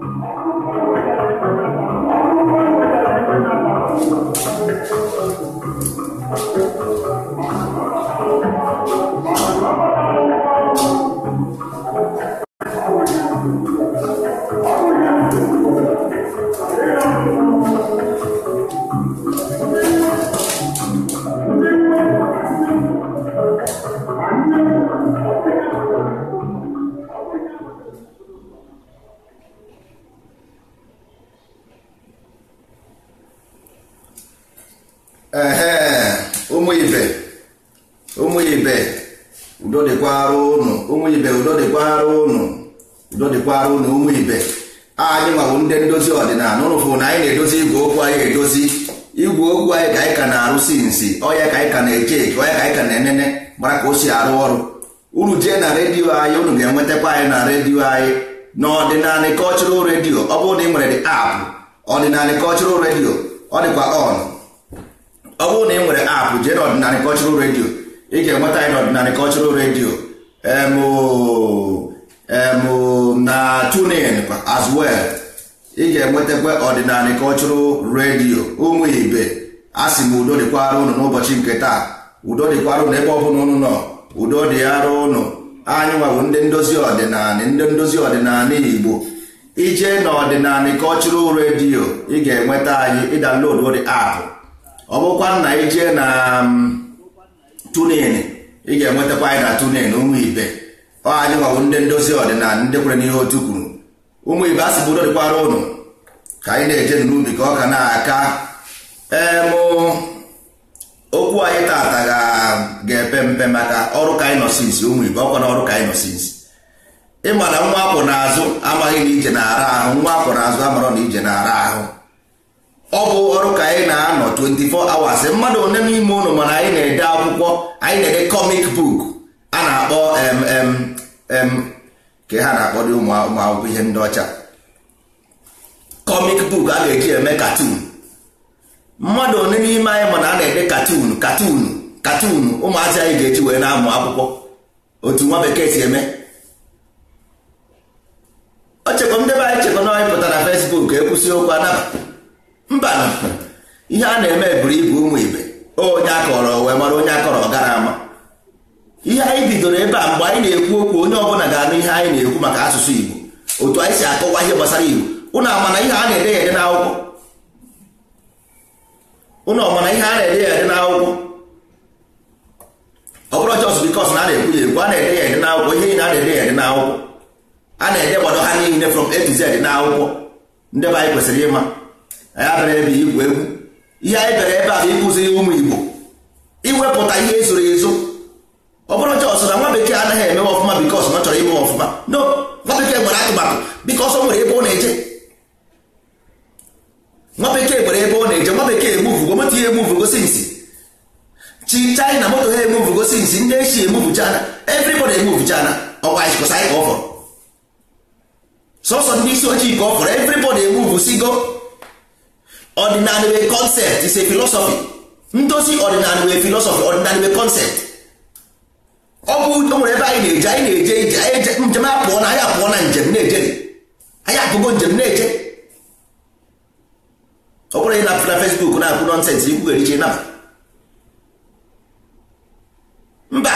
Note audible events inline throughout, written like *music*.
Thank na-ekwukwara ụlọ ụmụ ibe anyị nwawo ndị ndozi ọdịnala ụlụfụ na anyị na-edozi igwe okwu anyị edozi igwe okwu anyị ka anyị ka na-arụsi nsi ọya ka anyị ka na-eche eche ọya ka anyị ka na-enene gbara ka o si arụ ọrụ uru jee na redio anyị unu ga-enwetakwa anyị na redio anyị na ọdịnala redio ọ bụrụ na ị nwere apụ ọdịnala kọchụral redio ọ dịkwa ọ bụrụ na redio ị ga-enweta anyị na ọdịnala redio na tunin as well ị ga-enwetakwa ọdịnala cultural redio ụmụ ibe a sị m udo dịkwara ụnụ n'ụbọchị nke taa udo dịkwara ụnụ ebe ọ ụnụ nọ udo dị arụ ụnụ anyị nwawo ndị ndozi ọdịnala ndị ndozi ọdịnala igbo ije na ọdịnala cultural redio ị ga-enweta anyị ịdanlodu dị app ọ bụkwa na ije na mm, tunin ị ga-enwetakwa anyị na tunin ụmụ ibe ọ anyị nwawụ ndị ndozi ọdịnala ndị kwere n'ihe otu kwuru ụmụ ibe asị bụ dịkwara ụnụ ka anyị na-eje n'ubi ka ọ ka na-aka em okwu anyị tata ga-epe mpe maka ọrụ kaịnọsis ụmụ ibe ọkwa na ọrụ kaịnọsis ịma na nwa akwụ n'azụ amaghị na ije na-ara ahụ nwa akwụ n'azụ amara na ije na-ara ahụ ọ bụ ọrụ ka anyị na-anọ 24 hours mmadụ one n'ime ụnụ mana anyị na-ede akwụkwọ anyị na-ede kọmik buku. na-akpọ ka ha na-akpọ dị ụmụ akwụkwọ ihe ndị ọcha kọmik buk a ga-eji eme katun mmadụ one n'ime anyị mana a na-ede katun katun katun ụmụazị anyị ga-eji wee na-amụ akwụkwọ otu nwa bekee si eme o ndebe anyị chekwa na anyị pụtara fesbuk ekwụsị okwu anaba mba ihe a na-eme buru ibu ụmụ ibe onye akọrọ wee mara onye akọrọ gara ama ihe anyị bidoro ebe a mgbe anyị na-ekwu okwu onye ọbụla ga-anụ ihe anyị na-ekwu maka asụsụ Igbo otu anyị si akọwa ihe gbasara Igbo ụnụ amana ihe a na-ede ya ede n'akwụkwọ ụnụ ọmana ihe a na-ede ya ede n'akwụkwọ ọ bụrụ jọs bikọs na a na-ekwu ya ekwu a na-ede ya ede n'akwụkwọ ihe na na-ede ya ede n'akwụkwọ a na-ede gbado ha niile from A to n'akwụkwọ ndị anyị kwesịrị ịma anyị abịara ebe igwu egwu ihe anyị bịara ebe a bụ ịkụziri ụmụ Igbo iwepụta ihe ezoro ezo ọ bụrụ jọs na nwa bekee anaghị eme ọfụma bikos ọ chọrọ ime ọfụma no nwa bekee nwere atụmatụ bikos ọ nwere ebe ọ na-eje nwa bekee nwere ebe ọ na-eje nwa bekee emuvugo moto ya emuvugo sinsi chi china moto ha gosi sinsi ndị echi emuvu china everybody emuvu china ọkwa ịkọsa anyị ka ọ fọrọ sọsọ ndị isi ojii ka ọ fọrọ everybody emuvu sigo ọdịnala wee concept is a philosophy ndozi ọdịnala wee philosophy ọdịnala wee concept ọ bụ o nwere ebe anyị na-eje anyị na-eje ije anyị njem apụọ na anyị apụọ na njem na-eje anyị apụgo njem na-eje ọ bụrụ ị na apụta fesbuk na-akpụ nọnsensị ikwu ghere iche naba mba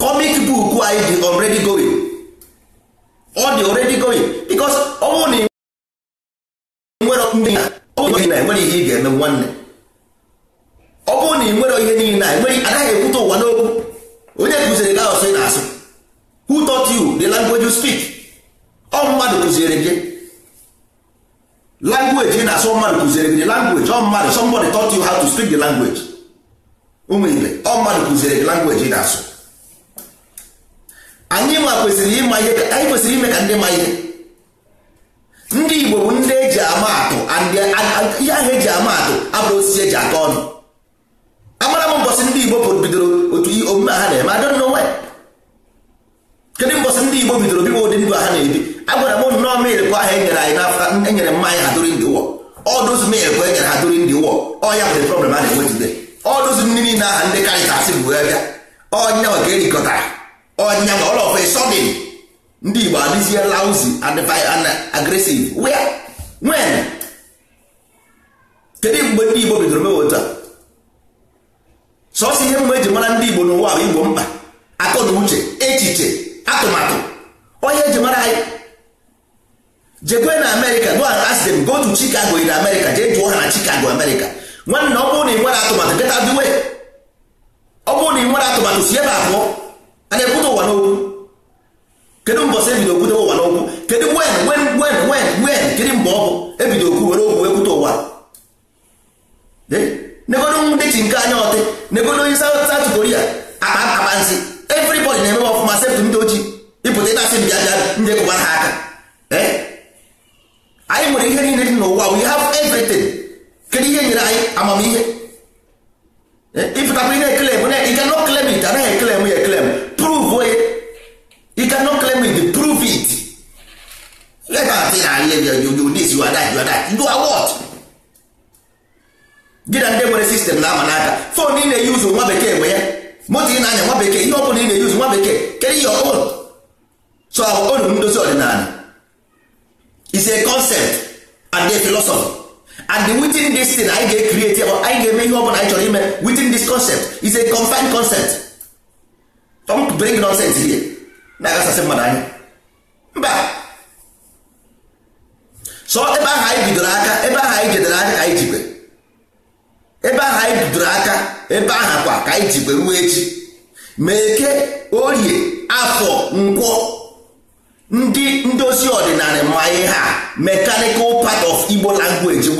comic buku anyị dị already going ọ dị already going because ọ bụrụ na ị nwere ndị ọ na enwere ihe ị ga-eme nwanne ọ bụrụ na ị nwere ihe niile a nwere agaghị ekwute ụwa n'okwu onye kụziri gị asụ ị na-asụ who taught you the language you speak ọ mmadụ kụziere gị language ị na-asụ mmadụ kụziere gị the language ọ mmadụ somebody taught you how to speak the language ụmụ ibe ọ mmadụ kụziere gị language ị na-asụ anyị ma kwesịrị ịma ihe anyị kwesịrị ime ka ndị ma ihe ndị Igbo bụ ndị eji ama atụ ihe ahụ eji ama atụ abụrụ osisi eji aka ọnụ amara m mbọsị ndị igbo pụrụ bidoro otu omume ha na-eme adọ nọ nwanyị kedu mbọsị ndị igbo bidoro biwa ụdị ndụ ha na-ebi agwara m nnọọ mil bụ enyere anyị n'afọ enyere mmanya ha during the war all those mil bụ enyere ha during the war ọ ya bụ the problem a na-enwe today all those ndị niile aha ndị karịta asị bụ wee bịa ọnya ka erikọtara ọnya ma ọlọfọ sọdin ndị igbo adịzie lauzi and agresiv wee nwen kedu mgbe ndị igbo bidoro mewe otu a sọsọ ihe mgbe eji mara ndị Igbo n'ụwa bụ Igbo mkpa akọ na uche echiche atụmatụ onye eji mara anyị jekwe na Amerịka go asị m go to Chicago in America jee jụọ ha na Chicago Amerịka nwanne ọ bụrụ na ị nwere atụmatụ get out the ọ bụrụ na ị nwere atụmatụ si ebe abụọ a na-ekwute ụwa n'okwu kedu mbọ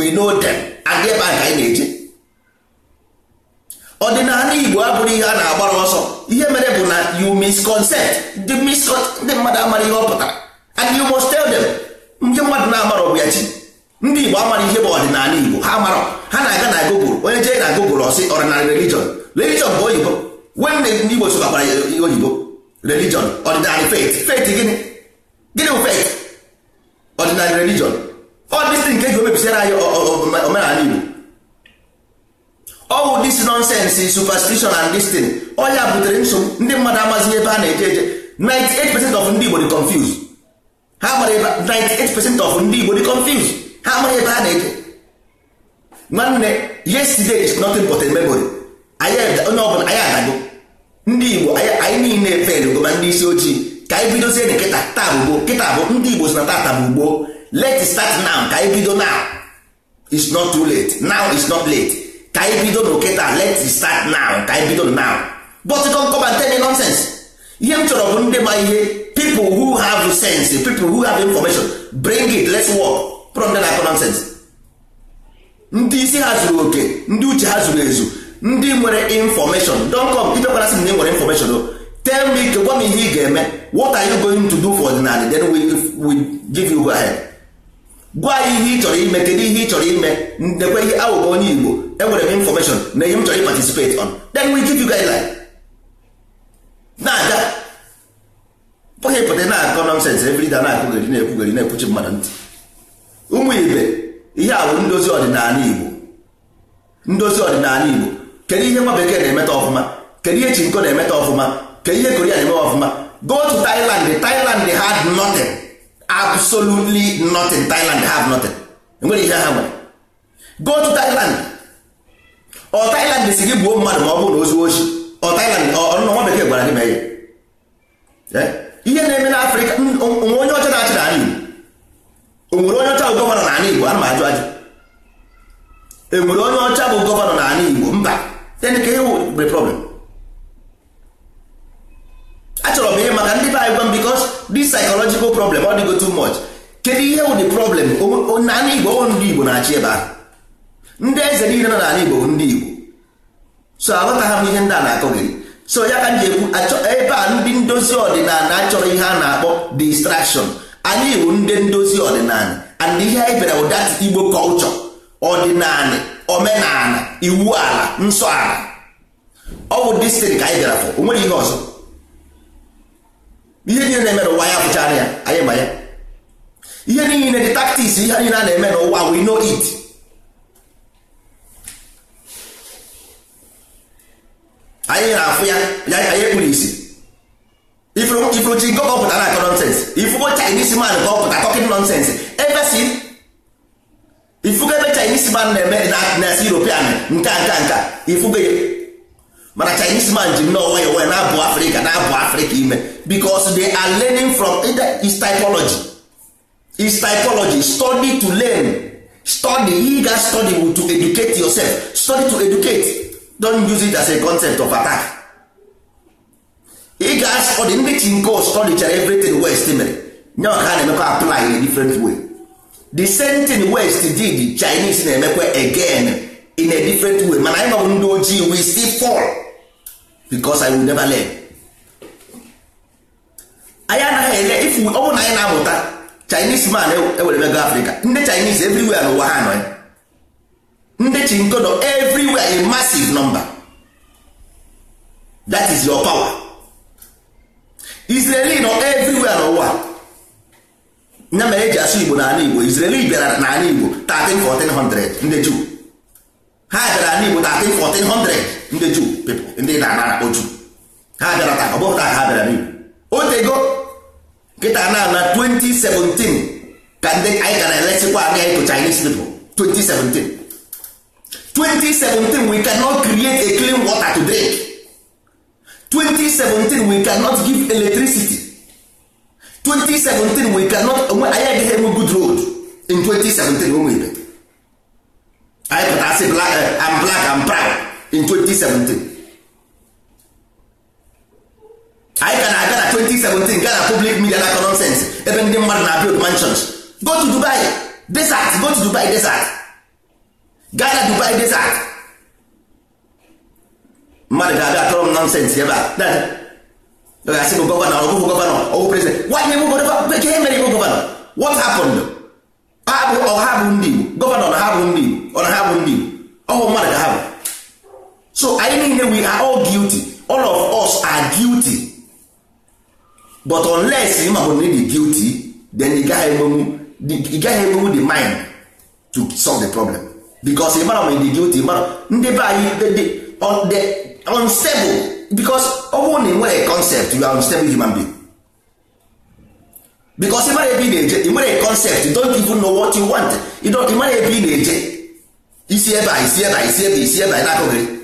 we know them and ebe ahụ anyị na-eje ọdịnala Igbo abụrụ ihe a na-agbara ọsọ ihe mere bụ na you misconcept ndị mmadụ amara ihe ọ pụtara and you must tell them ndị mmadụ na-amara ọbụ ya chi ndị Igbo amara ihe bụ ọdịnala Igbo ha mara ha na-aga na Google onye jee na Google ọsị ọdịnala religion religion bụ oyibo nwanne ndị Igbo sobakwara oyibo religion ọdịnala faith faith gịnị gịnị bụ faith ọdịnala religion ọdịsi nke ji omebisira anyị omenala igbo ọwụ dis nonsense superstition and this thing ọ ya butere nsogbu ndị mmadụ amazighị ebe a na-eje eje 98% of ndị igbo dị confused ha mara ebe 98% of ndị igbo dị confused ha mara ebe ha na-eje nwanne yesterday is nothing but a memory onye ọbụla anyị adago ndị igbo anyị niile efelugo ma ndị isi ojii ka anyị bidozie na kịta taa bụ gboo kịta bụ ndị igbo si na tata bụ gboo let start now ka anyị bido now it's not too late now it's not late ka anyị bido n'oke taa let start now ka anyị bido now but don't come and tell me nonsense ihe m chọrọ bụ ndị ma ihe people who have sense people who have information bring it let's work from there na nonsense ndị isi ha zuru oke ndị uche ha zuru ezu ndị nwere information infọmeshọn donkọm idekwara sị na ị nwere information o oh. tell me gwa m ihe ị ga-eme what are you going to do for ọdịnala then we, we give you go ahead gwa ihe ị chọrọ ime kedu ihe ị chọrọ ime ndekwa ihe awụbụ onye igbo enwere m infọmeshọn na ihe m chọrọ ịparticipate on then we give you like. na-aga pụghị pụta na-akọ nọnsens ebrida na-akụgheri na-ekwugheri na-ekwuchi mmadụ ntị ụmụ ibe ihe a bụ ndozi ọdịnala igbo ndozi ọdịnala igbo kedu ihe nwa bekee na-emeta ọfụma kedu ihe chinko na-emeta ọfụma kedu ihe koria na-eme ọfụma go to Thailand Thailand had nothing absolutely nothing Thailand have nothing enwere ihe ha nwere go to Thailand ọ Thailand si gị gbuo mmadụ ma ọ bụrụ na ozuo ochi ọ Thailand ọnụnọ nwa bekee gwara gị mee ihe na-eme n'Afrịka onwe onye ọcha na-achị na Igbo onwere onye ọcha bụ gọvanọ n'ala Igbo ana m ajụ ajụ enwere onye ọcha bụ gọvanọ na n'ala Igbo mba then ka ihe bụ problem achọrọ m ihe maka ndị be anyị gwa m because dị psychological problem ọ dịgo too much kedu ihe wụ the problem naanị igbo ọ ndị igbo na-achị ebe ahụ ndị eze niile nọ n'ala igbo bụ ndị igbo so ha m ihe ndị a na-akọ gị so ya ka m ji ekwu ebe a ndị ndozi ọdịnala achọrọ ihe a na-akpọ distrakshọn. anyị Igbo ndị ndozi ọdịnala and ihe anyị bịara bụ igbo kọlchọ ọdịnala omenala iwu ala nsọ ala ọ bụ ka anyị bịara fọ o ihe ọzọ ihe niile na-eme n'ụwa ya bụcha ya anyị ma ya ihe niile dị taktiks ihe niile a na-eme n'ụwa we know it anyị na-afụ ya ya anyị kpuru isi ifuru chi nke ọpụta na akọ nonsens ifugo chinese man ka ọpụta talking nonsens ebesin ifugo ebe chinese man na-eme na-asị european nka nke nka ifugo ya mana chinese man ji nnọọ nwayọ nwayọ na-abụ afrịka na-abụ afrịka ime because they are learning from eh, is typology is typology study to learn study he ga study to educate yourself study to educate don't use it as a concept of attack ị ga study ndị chinko study chara everything west mere nye ọka ha na-emekwa apply in a different way the same thing west did chinese na-emekwa again in a different way mana anyị nọbụ ndị ojii we still fall because I will never learn anyị anaghị ele ifu ọ bụrụ na anyị na-amụta Chinese man ewere eh, eh, mego Africa ndị Chinese everywhere n'ụwa ha nọ eh. ya ndị chinkodo everywhere a massive number that is your power Israeli nọ everywhere n'ụwa nya mere eji asụ Igbo n'ala Igbo Israeli bịara n'ala Igbo 13 1400 ndị Juu ha bịara n'Igbo 13 1400 ndị juu pepụ ndị na-ana akpọ juu ha bịara taa ọ bụghị taa ha bịara n'igbo otego nkịta na na 2017 ka ndị anyị gara elesikwa aka anyị to Chinese people 2017 2017 we cannot create a clean water to drink 2017 we cannot give electricity 2017 we cannot onwe anyị agaghị enwe good road in 2017 ụmụ ibe anyị pụta asị black and eh, black I'm proud in 2017 anyị ka na-aga na 2017 gaa na public media na nonsense ebe ndị mmadụ na build mansions go to Dubai desert go to Dubai desert gaa na Dubai desert mmadụ ga-abịa atọrọ m nonsense ebe a gasị bụ gọvanọ ọbụghị gọvanọ ọwụ prezident nwanyị bụ gọvanọ bekee mere ibu gọvanọ what happened ha bụ ọha bụ ndị Igbo gọvanọ na ha bụ ndị Igbo ọ na ha bụ ndị Igbo ọwụ mmadụ ka ha bụ so anyị niile we are all guilty all of us are guilty but unless ị mabụ na dị guilty then ị gaghị emenwu ị gaghị the mind to solve the problem because ị mara ma dị guilty ị mara ndị be anyị unstable because ọ bụrụ na ị nwere concept you are unstable human being because ị mara ebe ị na-eje ị nwere concept you don't even know what you want ị mara ebe ị na-eje isi ebe a isi ebe a isi ebe isi ebe a na-akụghị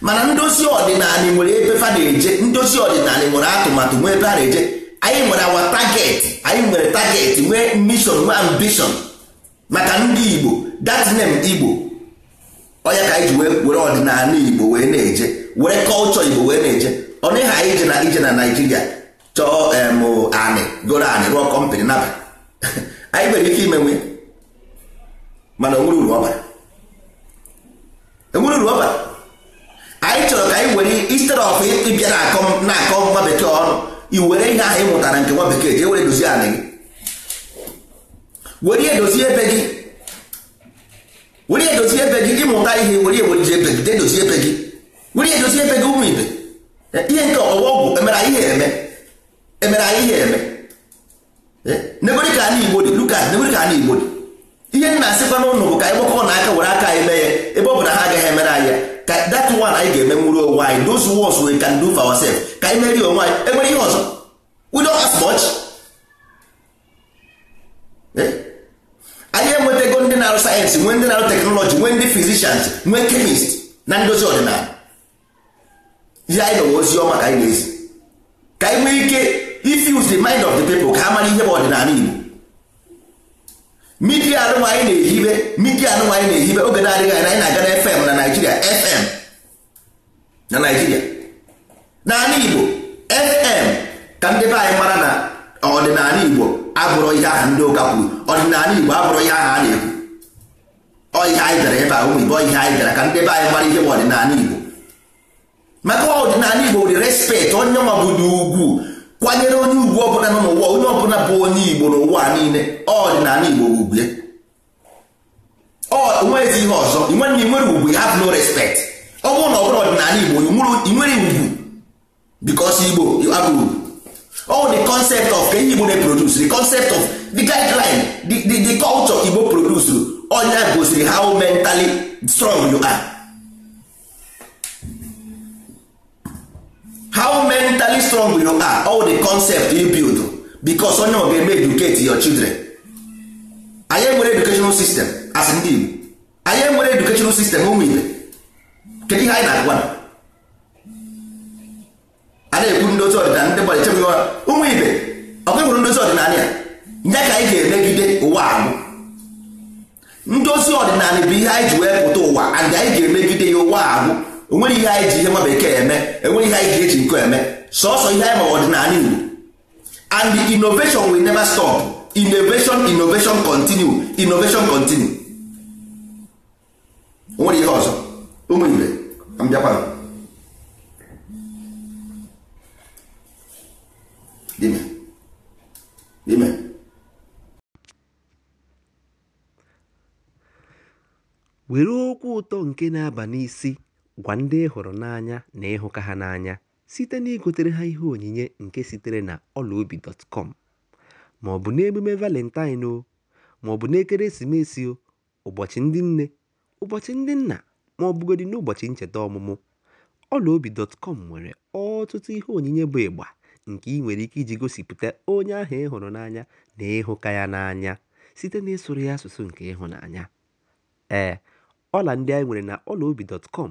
mana ndozi ọdịnala nwere ebe fa na-eje ndozi ọdịnala nwere atụmatụ nwee ebe a na-eje anyị nwere awa taget anyị nwere taget nwee mission nwee ambition maka ndị Igbo that Igbo onye ka anyị ji were ọdịnala Igbo wee na-eje were kọlchọ Igbo wee na-eje ọ dịghị anyị ije na ije na Naijiria chọọ em goro anị rụọ kọmpanị naba *laughs* anyị nwere ike imenwe mana onwere uru ọ bara e anyị chọrọ ka anyị were instead of ịbịa na-akọ na-akọ nwa bekee ọnụ i ihe ahụ ị mụtara nke nwa bekee jee were dozie anị gị were edozi ebe gị were edozi ebe gị ịmụta ihe were ewerije ebe gị dedozi ebe gị were edozi ebe gị ụmụ ibe eh, ihe nke ọwa ọgwụ emere anyị ihe eme emere anyị ihe eme eh, nebere ka anyị igbo dị lukas nebere ka anyị igbo dị ihe nna asịkwa n'ụlọ bụ ka anyị gbakọ na aka were aka anyị mee ya ebe ọ bụ na ha that one anyị ga-eme nwụrụ onwe anyị those ones we can do for ourselves ka anyị merie onwe anyị enwere ihe ọzọ we don't have much anyị enwetago ndị na-arụ sayensị nwee ndị na-arụ teknọlọji nwee ndị fizishans nwee kemist na ndozi ọdịnala ya anyị nọwa ozi ọma ka anyị na-ezi ka anyị nwee ike if use the mind of the people ka ha mara ihe bụ ọdịnala Igbo midia anụnwa anyị na-ehibe midia anụnwa anyị na-ehibe oge na-adịghị anya anyị na-aga na fm na naijiria fm na naijiria n'ala igbo fm ka ndị be anyị mara na ọdịnala igbo abụrụ ihe aha ndị ụka kwuru ọdịnala igbo abụrụ ihe aha a na-ekwu ọ ihe anyị bịara ebe a ụmụ igbo ihe anyị bịara ka ndị be anyị mara ihe bụ ọdịnala igbo maka ọdịnala igbo dị respekt onye nwa bụ dị ugwu kwanyere onye ugwu ọbụla nọ n'ụwa onye ọbụla bụ onye igbo n'ụwa niile ọ ọdịnala igbo ugwu ya onweghịzi ihe ọzọ nwanne nwere ugwu you have no respect ọ bụrụ na ọ bụrụ ọdịnala igbo nwere ugwu because igbo you have ugwu all the concept of ka ihe igbo na-eproduce the concept of the guideline the, the, the culture igbo produce onye gosiri how mentally strong you are how mentally strong you are all the concept you build because onye ọ ga-eme educate your children anyị nwere educational system as ndị Igbo anyị nwere educational system ụmụ ibe kedu ihe anyị na-agwa a na-ekwu ndozi ọdịnala ndị gbara echebe ụmụ ibe ọkụhụrụ ndozi ọdịnala ya nye ka anyị ga-emegide ụwa ahụ ndozi ọdịnala bụ ihe anyị ji wee pụta ụwa and anyị ga-emegide ya ụwa ahụ onwere ihe anyị ji ihe nwa bekee eme enwere ihe anyị ga-eji nkọ eme sọsọ ihe anyị ma ọdịnala Igbo and the innovation will never stop innovation innovation continue innovation continue onwere ihe ọzọ ụmụ ibe mbịakwa dime dime were okwu ụtọ nke na-aba n'isi Gwa ndị ị hụrụ n'anya na ịhụka ha n'anya site na igotere ha ihe onyinye nke sitere na ọlaobi.com ma ọ bụ n'emume Valentine o, ma ọ bụ n'ekeresimesi o, ụbọchị ndị nne, ụbọchị ndị nna ma ọ bụgodị n'ụbọchị ncheta ọmụmụ, ọlaobi.com nwere ọtụtụ ihe onyinye bụ ịgba nke ị nwere ike iji gosipụta onye ahụ ị hụrụ n'anya na ịhụka ya n'anya site eh, n'ịsụrụ ya asụsụ nke ịhụnanya. Ee, ọla ndị anyị nwere na ọlaobi.com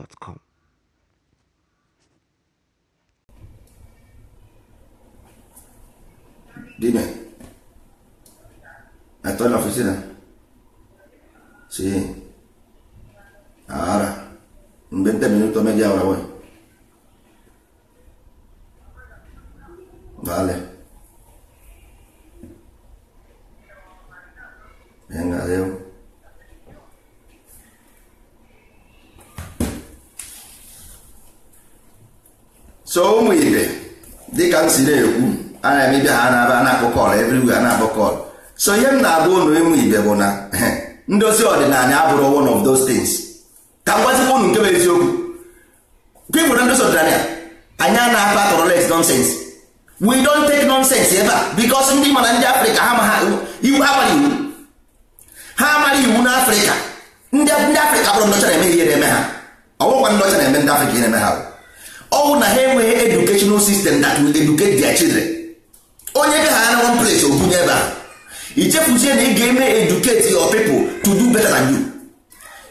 na Dime, estoy en la oficina. Sí. Ahora, en 20 minutos, media hora voy. Vale. Venga, adiós. so ụmụ ibe dịka m si na-ekwu ana na-eme bịa ha na-aba na-akpọ kọl a na-akpọ so ihe m na abụ ụnụ ịmụ ibe bụ na eh, ndozi ọdịnala abụrụ one of those things ka m gwazikwa ụnụ nke bụ eziokwu people na ndozi ọdịnala anya a na-akpa tolerate nonsense we don't take nonsense ebe a because ndị mana ndị afrịka ha ma iwu ha mara iwu ha amaghị iwu n'afrịka ndị afrịka bụrụ ndọcha na-eme ihe na-eme ha ọ bụkwa ndọcha na-eme ndị afrịka ihe na-eme ha ọwụ na ha enweghị educational system that will educate their children onye ga ha na one place obunye ebe ahụ ichefuzie na ị ga-eme educate your people to do better than you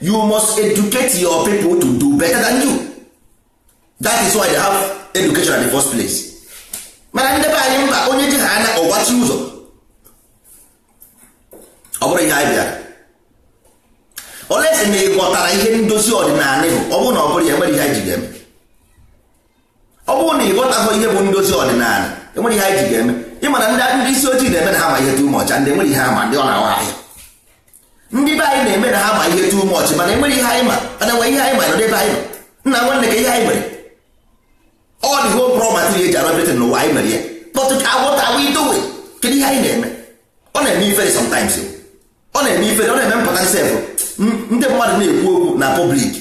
you must educate your people to do better than you that is why they have education at the first place mana ndị be anyị mba onye ji ha anya ọgbachi ụzọ ọ bụrụ ihe anyị bịara olesi na ị ghọtara ihe ndozi ọdịnala ịhụ ọ bụrụ na ọ bụrụ ya enwere ihe anyị ji ga-eme ọ bụrụ na ị ghọtahụ ihe bụ ndozi ọdịnala enwere ihe anyị ji ga-eme ịma na ndị isi ojii na-eme na ha ma ihe tu mọchị ndị enwere ihe ama ndị ọ na-awa ahịa ndị be anyị na-eme na ha ma ihe tu mọchị mana e ihe anyị ma mana enwere ihe anyị ma nọdebe anyị nna nwanne ka ihe anyị mere ọ dị ho eji n'ụwa anyị mere ya kpọtụ ka agwọta agwa ihe anyị na-eme ọ na-eme ifere ọ na-eme na-eme mpụta nsefụ ndị mmadụ na-ekwu okwu na pọblik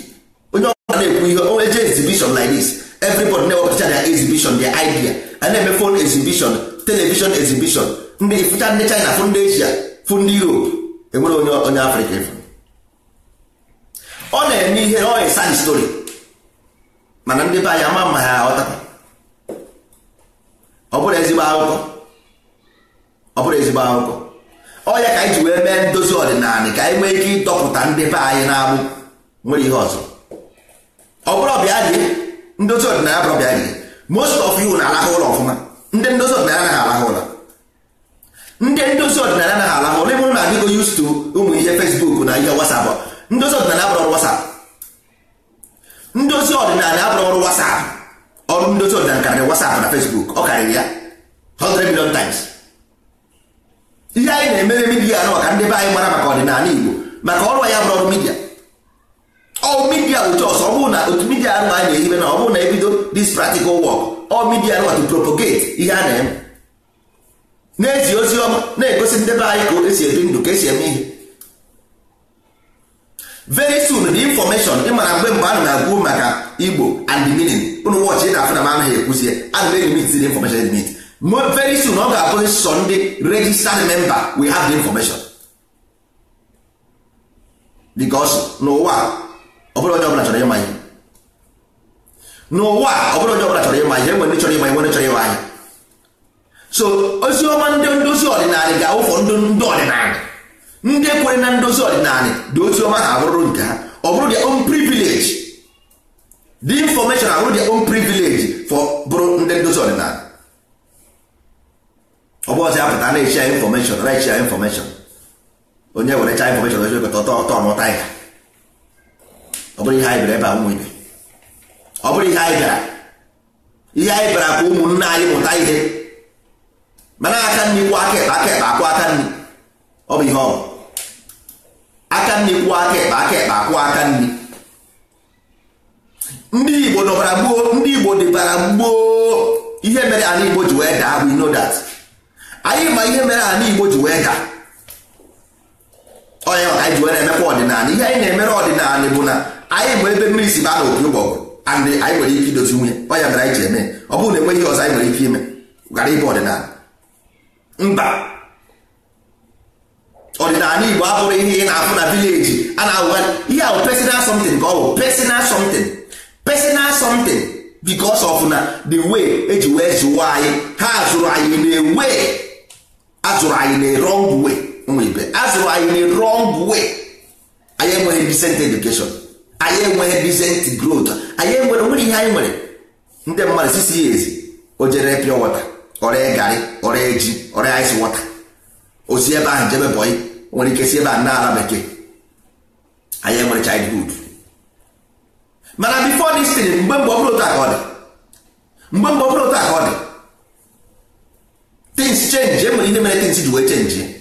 onye ọ na-ekwu ihe eji everybody na-ewepụta their exhibition their idea a na-eme phone exhibition television exhibition ndị fụcha ndị China fụ ndị Asia fụ ndị Europe enwere onye onye Afrịka efu ọ na-eme ihe ọ na-esa di story mana ndị be anyị ama mma ha aghọta ọ bụrụ ezigbo akụkọ ọ bụrụ ezigbo akụkọ ọ ka anyị ji wee mee ndozi ọdịnala ka anyị nwee ike ịdọpụta ndị be anyị na-abụ nwere ihe ọzọ ọ bụrụ ọbịa dị ndozi ọdịnala bụrụ bịa ihe most of you na-alahụ ụlọ ọfụma ndị ndozi ọdịnala anaghị alaha ụlọ ndị ndozi ọdịnala anaghị alaha ụlọ ịbụrụ na adịgo used to ụmụ ihe Facebook na ihe WhatsApp ndozi ọdịnala abụrụ ọrụ WhatsApp ndozi ọdịnala abụrụ ọrụ WhatsApp ọrụ ndozi ọdịnala karịrị WhatsApp na Facebook ọ karịrị ya hundred million times ihe anyị na-emere midia anụ ka ndị be anyị mara maka ọdịnala Igbo maka ọrụ ya bụrụ ọrụ midia all media bụ chọs ọ bụrụ na otu midia arụ a na-ehibe na ọ bụrụ na ebido this practical work all media arụ to propagate ihe a na-eme na-ezi ozi ọma na-egosi ndebe anyị ka esi ebi ndụ ka esi eme ihe very soon the information ị mara mgbe mgbe a na-agwụ maka igbo and the meaning ụnụ wọchị ị na-afụ na m anaghị ekwuzie ana m elimit the information limit very soon ọ ga-abụ sọ ndị registered member we have the information because n'ụwa ọbụrụ onye ọbụla chọrọ ịma ihe n'ụwa ọbụrụ onye ọbụla chọrọ ịma ihe enwere chọrọ ịma enwere chọrọ ịma ihe so ozi ọma ndị ndozi ọdịnala ga-awụfọ ndị ndị ọdịnala ndị kwere na ndozi ọdịnala dị ozi ha abụrụ nke ha ọ bụrụ their own privilege the information abụrụ their own privilege for bụrụ ndị ndozi ọdịnala ọ bụ ọzọ apụta na-echi ya infọmeshọn na-echi ya infọmeshọn onye were chaa infọmeshọn ozi ọtọ ọmụta ya ọ bụrụ ihe anyị bịara ebe a ọ bụrụ ihe anyị bịara ihe anyị bịara ka ụmụnne anyị mụta ihe mana aka nri kwuo aka ekpe aka ekpe akwụ aka nri ọ bụ ihe ọ bụ aka nri kwuo aka ekpe aka ekpe akwụ aka nri ndị igbo nọbara gboo ndị igbo dịbara gboo ihe mere anyị igbo ji wee daa we know that anyị ma ihe mere anyị igbo ji wee daa onye anyị ji wee na-emekwa ọdịnala ihe anyị na-emere ọdịnala bụ na anyị bụ ebe mmiri si baa n'opi ụgbọgụ anyị nwere ike idozi nwunye ọnya mere anyị ji eme ọ bụrụ na enweghị ihe ọzọ anyị nwere ike ime gara ịbụ ọdịnala mba ọdịnala igbo abụrụ ihe ị na-afụ na vileji a na-awụgharị ihe ahụ personal something ka ọ bụ personal something personal something because of na the way eji wee zụwa anyị ha zụrụ anyị na-ewe azụrụ anyị na wrong way ụmụ ibe azụrụ anyị na wrong way anyị enweghị decent education anyị enweghị decent growth anyị enwere nwere ihe anyị nwere ndị mmadụ sisi ya ezi o jere pịọ wọta ọrịa garị ọrịa ji ọrịa ice wọta osi ebe ahụ jebe bọyị nwere ike si ebe a na ala bekee anyị enwere childhood mana before dị thing mgbe mgbe ọbụla otu aka ọ dị mgbe mgbe ọbụla otu aka ọ dị things change enwere ihe mere tins ji wee change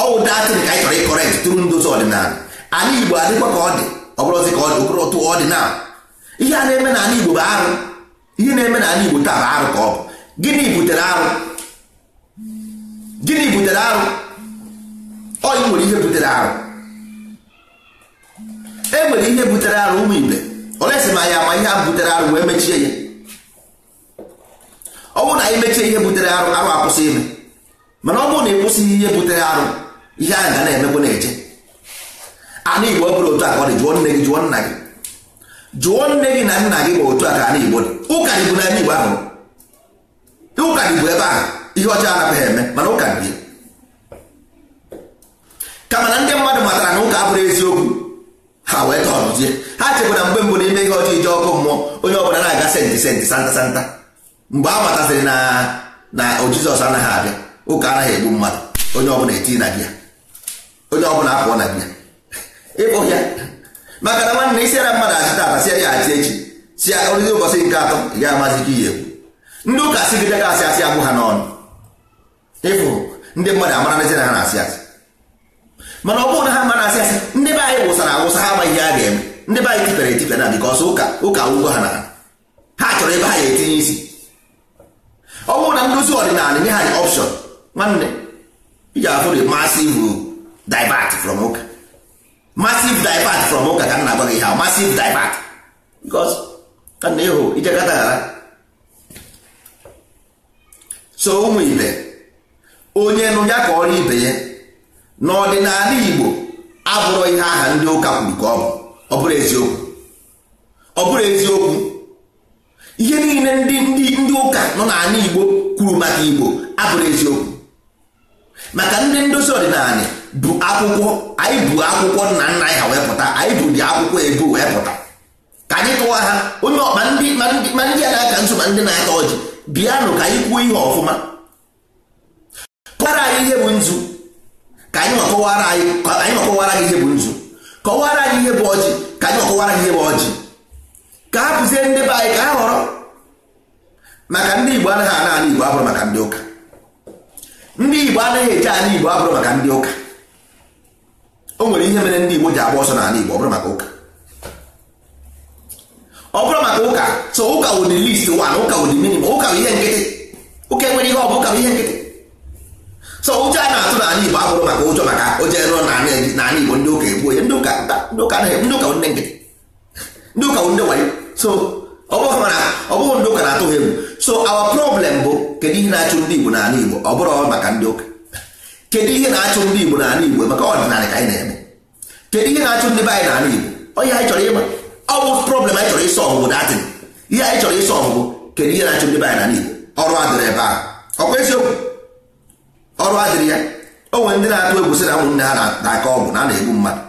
ọwụ datịrị ka anyị chọrọ ịkọrekt tụrụ ndozi ọdịnala anyị igbo adịkwa ka ọ dị ọ bụrụzi ka ọ dị okorotu ọdịnala ihe a na-eme n'ala igbo bụ arụ ihe na-eme n'ala igbo taa bụ arụ ka ọ bụ gịnị butere arụ gịnị butere arụ ọyị nwere ihe butere arụ e nwere ihe butere arụ ụmụ igbe olesi ma ya ma ihe a butere arụ wee mechie ya ọ bụrụ na anyị mechie ihe butere arụ arụ akwụsị ime mana ọ bụrụ na ị kwụsịghị ihe butere arụ ihe a ga na-emekwa na eje anụ igbo bụrụ otu a ka ọ dị jụọ nne gị jụọ nna gị jụọ nne gị na nna gị ma otu a ka anụ igbo dị ụka dị bụ n'ebe igbo ahụ ụka dị bụ ebe ahụ ihe ọcha anapụghị eme mana ụka dị kama na ndị mmadụ matara na ụka abụrụ eziokwu ha wee tọrọzie ha na mgbe mbụ n'ime ihe ọcha ije ọkụ mmụọ onye ọbụla na-aga senti senti santa santa mgbe a matasịrị na na jizọs anaghị abịa ụka anaghị egbu mmadụ onye ọbụla eti na gị ya onye ọbụla apụọ na biya ịkpụ ya maka na nwanne isi ara mmadụ achị tata si ya achị echi si ya oriri ụbọchị nke atọ ya amazi ka ihe ndị ụka sigide ga asị asị abụ ha n'ọnụ ịfụ ndị mmadụ amara nezi na ha na-asị asị mana ọ bụrụ na ha ma asị asị ndị be anyị wụsara awụsa ha amaghị ihe a ga-eme ndị be anyị tipere etipịa na bikọsọ ụka ụka ugbo ha na ha ha chọrọ ebe ha ga-etinye isi ọ bụrụ na ndozi ọdịnala nye ha ọpshọn nwanne ị ga-afụ masị ivu divert from ụka massive divert from ụka ka m na-agwa gị ha massive divert because ka na ịhụ ijekata ghara so ụmụ ibe onye nụ ya ka ọrụ ibe ya n'ọdịnala Igbo abụrụ ihe aha ndị ụka kwuru ka ọ bụ ọ bụrụ eziokwu ọ bụrụ eziokwu ihe niile ndị ndị ndị ụka nọ n'ala Igbo kwuru maka Igbo abụrụ eziokwu maka ndị ndozi ọdịnala bụ akwụkwọ anyị bụ akwụkwọ nna nna anyị ha wee pụta anyị bụ dị akwụkwọ ebu wee pụta ka anyị tụwa ha onye ọkpa ndị ma ndị a na-aka nso ma ndị na-ata ọjị bịanụ ka anyị kwuo ihe ọfụma kọwara anyị ihe bụ nzu ka anyị ọkọwara anyị ọkọwara gị ihe bụ nzu kọwara anyị ihe bụ ọjị ka anyị ọkọwara gị ihe bụ ọjị ka ha pụzie ndị be anyị ka ha họrọ maka ndị Igbo anaghị ana ala Igbo abụrụ maka ndị ụka ndị Igbo anaghị eje ala Igbo abụrụ maka ndị ụka o nwere ihe mere ndị Igbo ji agba ọsọ n'ala Igbo ọ bụrụ maka ụka ọ bụrụ maka ụka so ụka wụ the least one ụka wụ the ụka ihe nkịtị ụka enwere ihe ọ bụ ụka ihe nkịtị so ụjọ a na-atụ n'ala Igbo abụrụ maka ụjọ maka ụjọ ero n'ala Igbo ndị ụka egbuo ya ndị ụka ndị nkịtị ndị ụka wụ ndị wayo so ọ bụghị ndị ụka na-atụ ha egwu so awa problem bụ kedu ihe na-achụ ndị Igbo n'ala Igbo ọ bụrụ maka ndị ụka kedu ihe na-achụ ndị Igbo n'ala Igbo maka ọdịnala ka anyị na-eme kedu ihe na-achụ ndị be anyị n'ala Igbo onye anyị chọrọ ịma ọ bụ problem anyị chọrọ ịsọ ọgụgụ datin ihe anyị chọrọ ịsọ kedu ihe na-achụ ndị be anyị Igbo ọrụ adịrị ebe ahụ ọkwa eziokwu ọrụ adịrị ya o nwere ndị na-atụ egwu na ha na-aka ọgwụ na a na-egbu mmadụ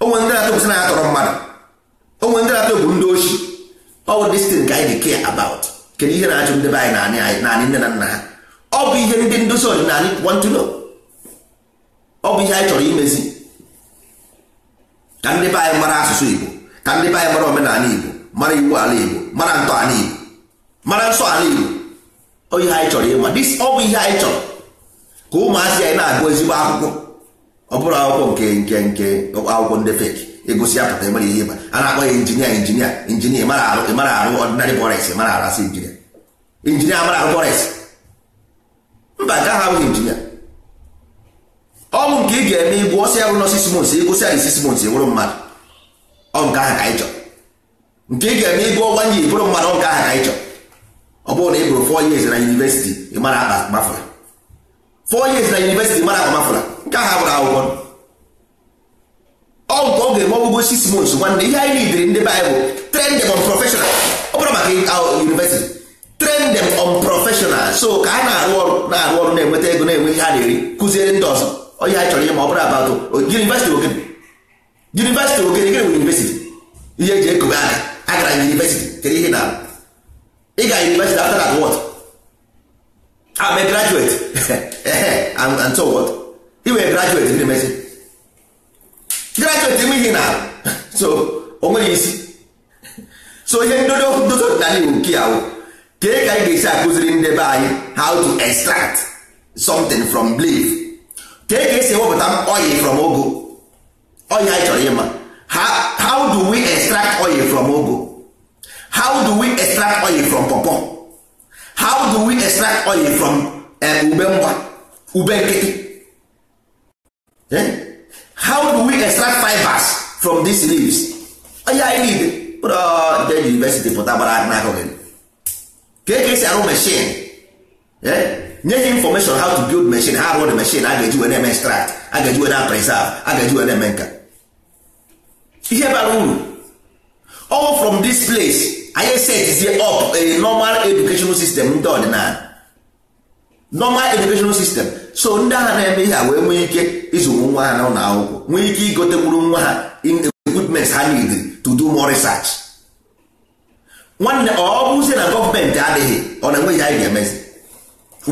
o nwere ndị na-atụ na ya tọrọ mmadụ o nwere ndị na-atụ egwu ndị ochi kedu ihe na-achụ ndị be anyị naanị nne na nna ha ọ ihe ndị ndozi ọdịnala ọ bụ ihe anyị chọrọ imezi ka ndị be anyị mara asụsụ Igbo ka ndị be anyị mara omenala Igbo mara iwu ala Igbo mara ntọ ala Igbo mara nsọ ala Igbo ọ ihe anyị chọrọ ịma dis ọ bụ ihe anyị chọrọ ka ụmụazị anyị na-agụ ezigbo akwụkwọ ọ bụrụ akwụkwọ nke nke nke akwụkwọ ndị feki egosi apụta emere ihe ịba a na-akpọ ya injinia injinia injinia mara arụ ịmara arụ ọdịnarị bọres mara arasị injinia injinia mara arụ bọres mba nke ahụ abụghị injinia ọ nke ị ga-eme igbu ọsị ya bụ nọ e e mmadụ ọ nke ka anyị nke ị ga-eme igbu ọnwa nye ịbụrụ mmadụ ọ nke ka anyị ọ bụrụ na ị bụrụ fọ years na yunivesiti mara akpa gbafụra four years na yunivesiti mara akpa gbafụra nke ahụ abụrụ akwụkwọ ọ nke ọ ga-eme ọgwụgwọ six nwanne ihe anyị nidiri ndị anyị bụrụ maka university on so ka ha na-arụ arụ ọrụ na-enweta ego na-enwe ihe na-eri kụziere ndị ọzọ onye anyị chọrọ ihe ma ọ bụrụ abatụ university ogene yunivesiti ogene gịnị bụ yunivesiti ihe eji ekobe aka agara university kedu ihe na ị ga yunivesiti after that what I'm ah, a graduate *laughs* and so what ị wee graduate gịnị mesi graduate ihe na *laughs* so o nwere isi so ihe ndodo ndodo dịnala igbo nke ya kee ka anyị ga-esi akụziri ndebe anyị how to extract something from belief kee ka esi ewepụta oil from ogo oil anyị chọrọ ịma how do we extract oil from ogo how do we extract oil from pọpọ how do we extract oil from eh, ube mgba ube nkịtị eh? how do we extract fibers from these leaves oya anyị niile pụrụ university pụta gbara n'akụghị kee ka esi arụ machine eh? nye ha infọmeshọn how to build machine ha rụọ the machine a ga-eji wee na-eme extract a ga-eji wee na preserve a ga-eji wee na-eme nka ihe bara uru all from this place anyị setizie up a normal educational system ndị ọdịnala normal educational system so ndị agha na-eme ihe a wee nwee ike izụrụ nwa ha n'ụlọ akwụkwọ nwee ike igotekwuru nwa ha in equipment ha need to do more research nwanne ọ bụzie na gọọmenti adịghị ọ na-enweghị anyị ga-emezi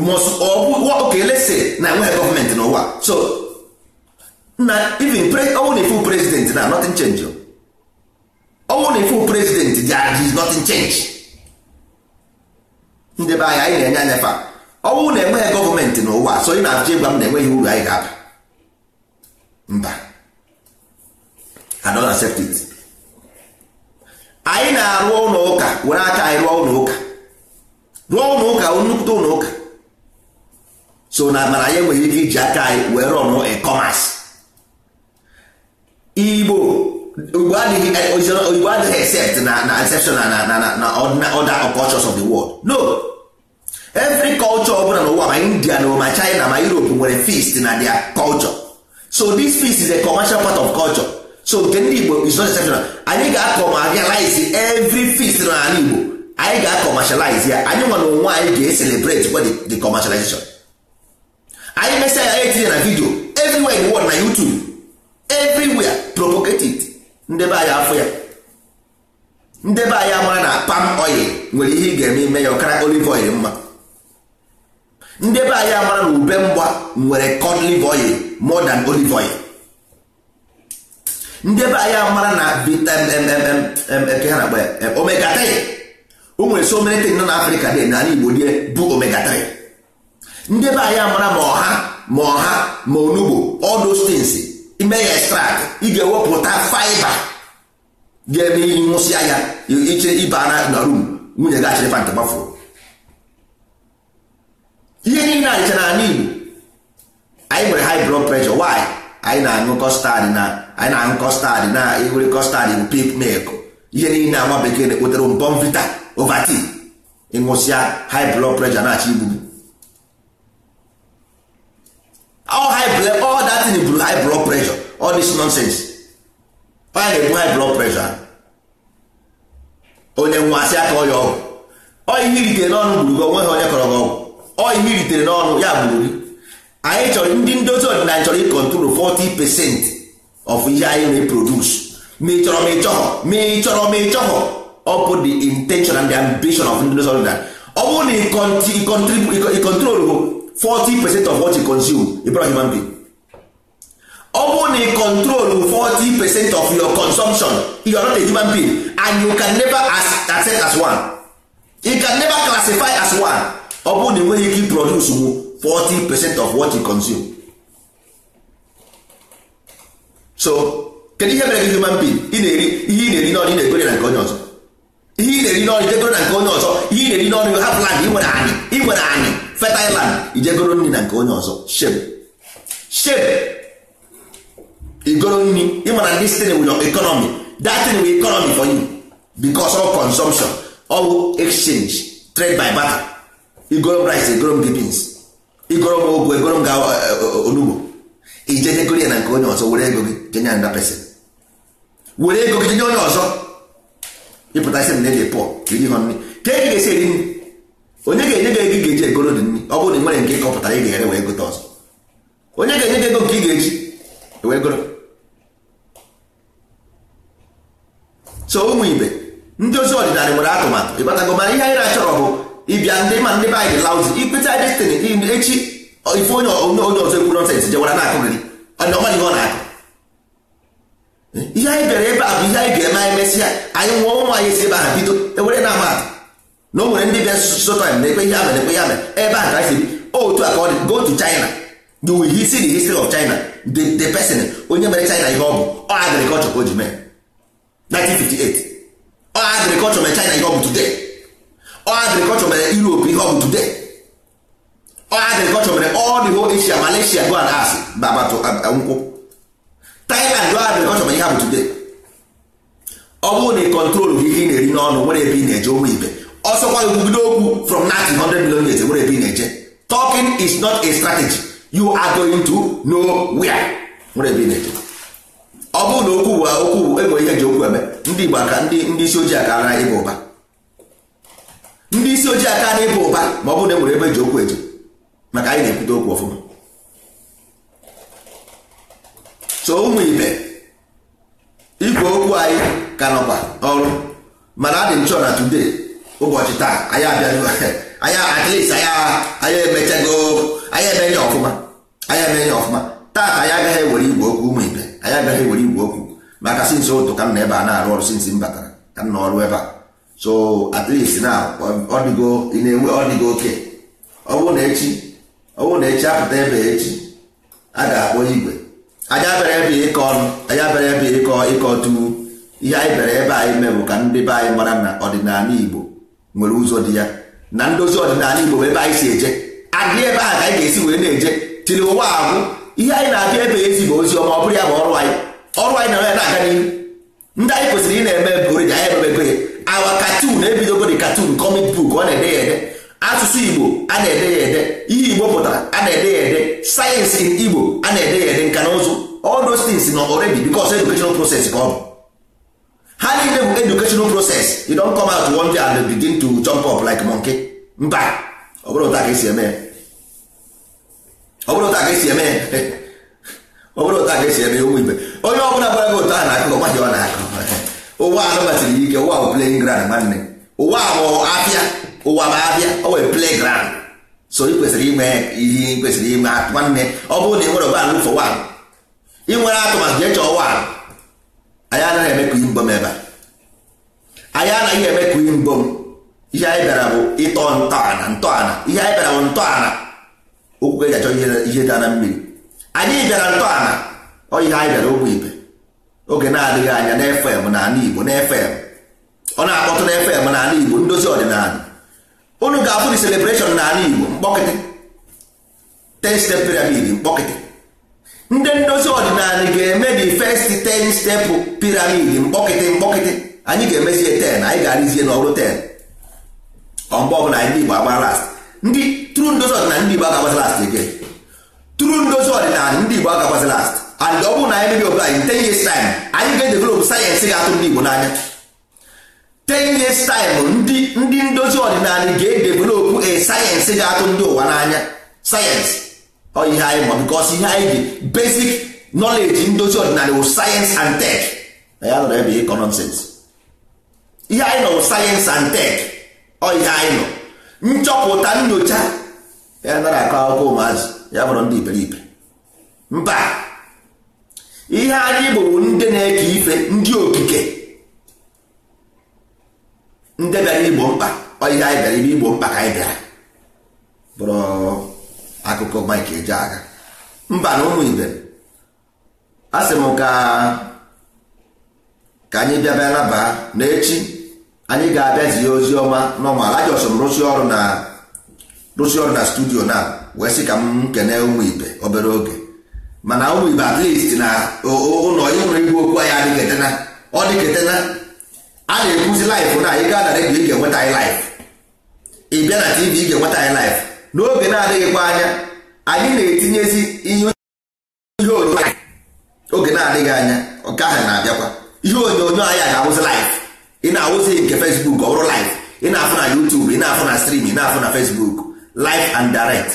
okay let's say na enweghị gọọmenti n'ụwa so na even ọnwụ na ifu president na nothing change ọnwụ na ifu president there is nothing change ndị be anyị anyị na-enye anya fa ọnwụ na enweghị gọọmenti n'ụwa so ị na-achọ ịgwa m na enweghị uru anyị ga-aba mba I don't accept it anyị na-arụ ụlọ ụka were aka anyị rụọ ụlọ ụka rụọ ụlọ ụka nnukwute ụlọ ụka so na mana anyị enweghị ike iji aka anyị wee rọnụ ekọmas igbo igbo adịghị except na na exceptional na na na na other cultures of the world no every culture ọbụla n'ụwa ma india na ma china ma europe nwere feast na their culture so this feast is a commercial part of culture so nke ndị igbo is not exceptional anyị ga-akọmalize every feast na ala igbo anyị ga-akọmashalize ya anyị nwa na onwe anyị ga-eselebrate the commercialization anyị mesịa ya etinye na vidio everywhere in the world na YouTube everywhere propagated ndebe anyị afọ ya ndebe anyị amara na palm oil nwere ihe ị ga-eme ime ya ọkara olive oil mma ndebe anyị amara na ube mgba nwere cod live oil more than olive oil ndebe anyị amara na omega 3 o nwere so many things nọ na Africa dị na ala Igbo die bụ omega 3 ndị be anyị amara ma ọha ma ọha ma onugbo all those ime ya extract ị ga-ewepụta faiba ga-eme ịnwụsịa ya iche ịba na rum nwunye gị achịrịfa nke gbafuru ihe niile anyị chara anyị Igbo anyị nwere high blood pressure why anyị na-aṅụ kọstad na anyị na-aṅụ kọstad na ewere kọstad bụ pip milk ihe niile nwa bekee na-ekpotere mbọm vita ovaltine ịṅụsịa high blood pressure na-achọ igbubu all high blood all that thing blue high blood pressure all this nonsense ọ ya na-ebu high blood pressure onye nwa asị aka ọya ọgwụ ọ ihe iritere n'ọnụ gburu gị onweghị onye kọrọ gị ọgwụ ọ ihe iritere n'ọnụ ya gburu gị anyị chọrọ ndị ndozi ọdịnala chọrọ ịkọntrol 40 percent of ihe anyị na-eprodus ma ị chọrọ ma ị chọghọ ma ị chọrọ ma ị chọghọ ọ bụ the intention and the ambition of ndị ndozi ọdịnala ọ bụrụ na ịkọntrol 40 percent of what you consume a brought human being ọ bụrụ na control 40 percent of your consumption you are not a human being and you can never as, accept as one you can never classify as one ọ bụrụ na enweghị ike produce 40 percent of what you consume so kedu ihe mere gị human being ị na-eri ihe ị na-eri n'ọrụ ị na-egore na nke onye ọzọ ihe ị na-eri n'ọrụ idegoro na nke onye ọzọ ihe ị na-eri n'ọrụ hapụ land ị nwere anyị ị nwere anyị fetailand ijegoro nri na nke onye ọzọ shape shape igoro nri ịmana this thing with economy that thing economy for you because of consumption all exchange trade by barter igoro rice igoro m beans igoro m ogwu egoro m ga eh, eh, onugbo ijejegoro ya na nke onye ọzọ were ego gị jenye nda pesin were ego gị jenye onye ọzọ ịpụta isi m na-ede pọ iri ha nri ka e ga-esi eri nri onye ga-enye gị ego ga-eji egoro dị nri ọ bụrụ na ị nwere nke ịkọpụtara ị ga-ere wee gote ọzọ onye ga-enye gị ego nke ị ga-eji wee goro so ụmụ ibe ndị ozi ọdịnala nwere atụmatụ ịgbatago mana ihe anyị na-achọrọ bụ ịbịa ndị ma ndị be anyị dị lauzi ikpeta destin echi ife onye onye ọzọ ekwu nọnsens jewara na-akụ gị ọ na-akụ ihe anyị bịara ebe a bụ ihe anyị ga-eme anyị mesịa anyị nwụọ ụmụ anyị si ebe ahụ bido ewere na amatụ na o nwere ndị bịa sụsụ time na-ekwe ihe amere ekwe ya mere ebe a ka anyị si otu a ka ọ dị go to China you will see the history of China the, the person onye mere China ihe ọ bụ ọ agriculture ka o ji mee 1958 ọ agriculture mere China ihe ọ bụ today ọ agriculture mere Europe ihe ọ bụ today ọ agriculture mere all the whole Asia Malaysia go and ask baba to um, uh, nkwụ Thailand ọ agriculture mere ihe ọ bụ today ọ bụrụ na ị kọntrol ihe ị na-eri n'ọnụ nwere ebe ị na-eje ụmụ ibe ọsọkwa ekwubido okwu from 900 million years nwere ebe ị na-eje talking is not a strategy you are going to know where. ebe ị na-eje ọ bụrụ na okwu okwu enwere ihe ji okwu eme ndị Igbo aka ndị isi ojii aka ara ịba ụba ndị isi ojii aka ara ịba ụba ma ọ bụrụ na enwere ebe ji okwu eji maka anyị na-ekwute okwu ọfụma so ụmụ ibe igwe okwu anyị ka nọkwa ọrụ mana adị nchọ na today ụbọchị taa anyị abịago anyị at least anyị emechago anyị eme nye ọfụma anyị eme nye ọfụma taata anyị agaghị ewere igwe okwu ụmụ ibe anyị agaghị ewere igwe okwu maka sinsi ụtụ ka m na ebe a na-arụ ọrụ sinsi m batara ka m n'ọrụ ebe a so at least na ọ dịgo ị na-enwe ọ dịgo oke ọ bụrụ na echi ọ na echi apụta ebe echi a ga-akpọ igwe anyị abịara ebe ịkọ ọnụ anyị abịara ebe ịkọ ịkọ tu ihe anyị bịara ebe anyị mee ka ndị be anyị mara na ọdịnala Igbo nwere ụzọ dị ya na ndozi ọdịnala Igbo ebe anyị si eje adị ebe a ka anyị ga-esi wee na-eje tiri ụwa ahụ ihe anyị na-abịa ebe ezi bụ ozi ọma ọ bụrụ ya bụ ọrụ anyị ọrụ anyị na ya na-aga n'ihu ndị anyị kwesịrị ị na-eme bụrụ anyị ememego ya awa katun ebidogo dị katun kọmik buk ọ na-ede ya ede asụsụ Igbo a na-ede ya ede ihe Igbo pụtara a na-ede ya ede sayensị Igbo a na-ede ya ede nka na ụzụ all those things nọ already because educational process ka ọ bụ ha niile bụ educational process you don come out one day and begin to jump up like monkey mba ọ bụrụ a ka esi eme ọ ka esi eme onye ọbụla bụla gbara gị ụta na-akụ ọgbaghị ọ na-akụ ụwa anụbatiri ike ụwa bụ playing ground nwanne ụwa bụ afịa ụwa bụ ọ wee play ground so ị kwesịrị ihe ị kwesịrị nwanne ọ bụrụ na ị nwere ụba ị nwere atụmatụ chọọ anyị anaghị eme ka mbom ebe a anyị anaghị eme ka mbom ihe anyị bịara bụ ịtọ ntọala ntọala ihe anyị bịara bụ ntọala okwu ka eji achọ ihe dị na mmiri anyị bịara ntọala ọ ihe anyị bịara ogbe ibe oge na-adịghị anya na fm na ala igbo na fm ọ na-akpọtụ na fm na ala igbo ndozi ọdịnala unu ga-afụ dị celebreshọn na ala igbo mkpọkịtị ten step pyramid mkpọkịtị ndị ndozi ọdịnala ga-eme the first ten step piramid mkpọkịtị mkpọkịtị anyị ga-emezie ten anyị ga-arịzie n'ọrụ ten ọmgbe ọbụla anyị igbo agba last ndị tru ndozi ọdịnala ndị igbo agakwazi last again tru ndozi ọdịnala ndị igbo agakwazi last and ọ bụrụ na anyị mebi obodo anyị ten years time anyị ga-edevelop sayensị ga-atụ ndị igbo n'anya ten years time ndị ndị ndozi ọdịnala ga-edevelop a sayensị ga-atụ ndị ụwa n'anya sayensị ihe anyị ma bikos ihe anyị ji basic knowledge ndozi ọdịnala wụ sayensị and tek na ya nọrọ ebe ịkọ nọnsens ihe anyị nọ wụ sayensị and tek ọ ihe anyị nọ nchọpụta nyocha ya nara akọ akwụkwọ ụmụazị ya bụrụ ndị iberibe mba ihe anyị bụrụ ndị na-eke ife ndị okike ndị bịara igbo mkpa ọ ihe anyị bịara igbo mkpa ka anyị bịara bụrụ akụkọ Mike Ejeagha mba na ụmụ ibe a sị m ka ka anyị bịa bịa naba n'echi anyị ga-abịa zie ozi ọma n'ọmal ajọsọ m rụsi ọrụ na rụsi ọrụ na studio na wee sị ka m kene ụmụ ibe obere oge mana ụmụ ibe at least na ụlọ ịnụrụ igwe okwu anyị adịghị etena ọ dịka etena a na-ekwuzi laịfụ na ị gaa na redio ị ga-enweta anyị laịfụ ị bịa na tv ị ga-enweta anyị laịfụ n'oge na-adịghịkwa anya anyị na-etinyezi ihe ihe onyonyo anyị oge na-adịghị anya nke ahụ na-abịakwa ihe onyonyo anyị a ga-awụzi live ị na-awụzi nke fesbuk ọ bụrụ live ị na-afụ na YouTube ị na-afụ na stream ị na-afụ na fesbuk live and direct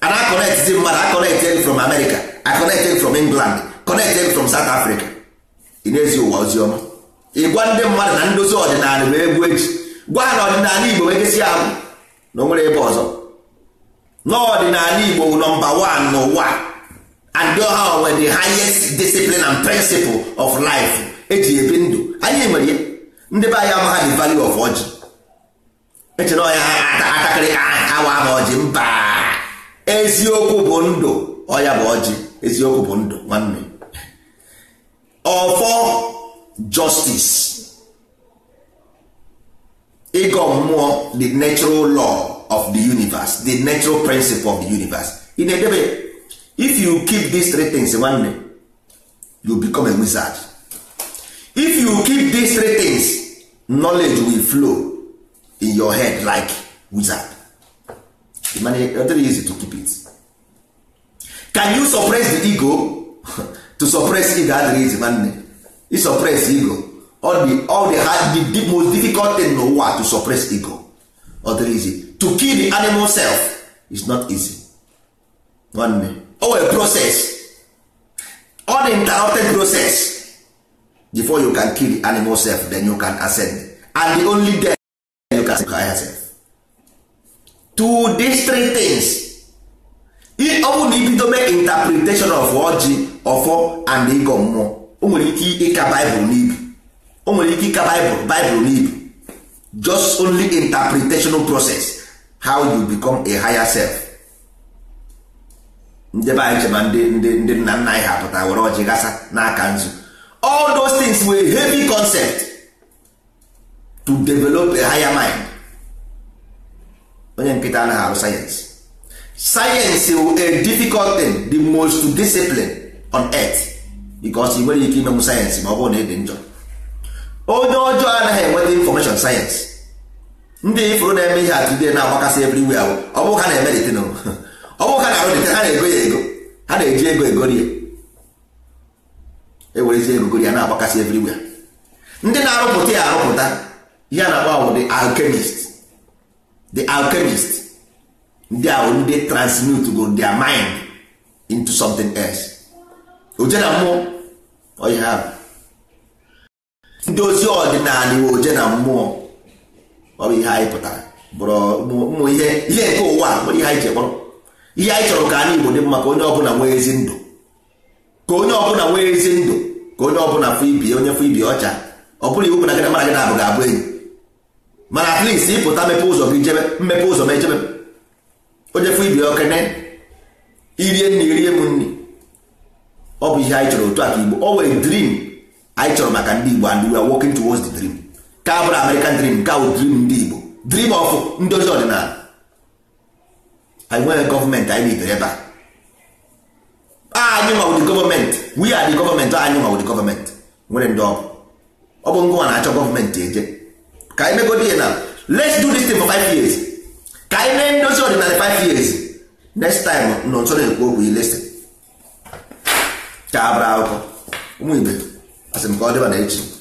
a na-akọnetzi mmadụ akọnekted from America akọnekted from England connected from South afrịka ị na-ezi ụwa ozi ọma ịgwa ndị mmadụ na ndozi ọdịnala bụ egwu eji gwa ha na ọdịnala Igbo nwegesị ahụ na o nwere ebe ọzọ n'ọdịnala Igbo nọmba one n'ụwa and ha were the highest discipline and principle of life eji ebi ndụ anyị mere ya ndị be anyị amaha the value of ọjị echere ọya ha atakịrị awa ha ọjị mba eziokwu bụ ndụ ọya bụ ọjị eziokwu bụ ndụ nwanne ọfọ justice ịgọ mmụọ the natural law of the universe the natural principle of the universe in na-edebe if you keep these three things nwanne you become a wizard if you keep these three things knowledge will flow in your head like wizard very easy to keep it can you suppress the ego *laughs* to suppress ego adịghị nwanne ị suppress ego all the all the hard the, most difficult thing n'ụwa to suppress ego ọ easy to kill the animal self is not easy nwanne o oh, a process uninterrupted process before you can kill the animal self then you can ascend and the only death you can ascend higher self to these three things ọ only na ibido mee interpretation of ọjị ọfọ and ịgọ mmụọ o nwere ike ịka baịbụl n'ibu o nwere ike ịka bible Bible n'ibu just only interpretational process how you become a higher self ndị be anyị chema ndị ndị ndị nna nna anyị ha pụta were ọjị gasa n'aka nzu all those things were heavy concept to develop a higher mind onye nkịta anaghị arụ sayensị sayensị wụ a difficult thing the most discipline on earth because ị nwere ike imenwu sayensị ma ọ bụrụ na ị dị njọ onye ọjọọ anaghị enweta information sayensị ndị ifuru na-eme ihe atụ ihe na-agbakasị everywhere ọ bụrụ ha na-eme detin *laughs* ọ bụrụ ha na-arụ detin ha na-ego ya ego ha na-eji ego egorie ewerezi ego gorie na-agbakasị everywhere ndị na-arụpụta ya arụpụta ihe a na agba ahụ the alchemist the alkemist ndị ahụ ndị transmute go their mind into something else oje na mmụọ ọhịa ndị ozi ọdịnala iwe oje na mmụọ ọ bụ ihe anyị pụtara bụrụ ụmụ ihe ihe nke ụwa nwere ihe anyị ji ihe anyị chọrọ ka anyị Igbo dị mma ka onye ọbụla nwee ezi ndụ ka onye ọbụla nwee ezi ndụ ka onye ọbụla fụ ibi onye fụ ibi ọcha ọ bụla iwu na gị mara gị abụ ga-abụ enyi mana at least ịpụta mepe ụzọ gị jebe mmepe ụzọ ma ejebe onye fụ ibi okene irie nri irie m nri ọ bụ ihe anyị chọrọ otu a ka Igbo ọ were dream anyị chọrọ maka ndị Igbo and we are working towards the dream nke bụrụ American dream nke awụ dream ndị Igbo dream of ndozi ọdịnala anyị nwere gọọmenti anyị bidoro ebe a anyị ma ụdị gọọmenti we are the gọọmenti anyị ma ụdị gọọmenti nwere ndị ọgụ ọ bụ ngwa na-achọ gọọmenti eje ka anyị megodi ihe na let's do this thing for five years ka anyị mee ndozi ọdịnala five years next time nọ nso na-ekwu okwu ilesi ka abara akwụkwọ ụmụ ibe asị m ka ọ dịba na echi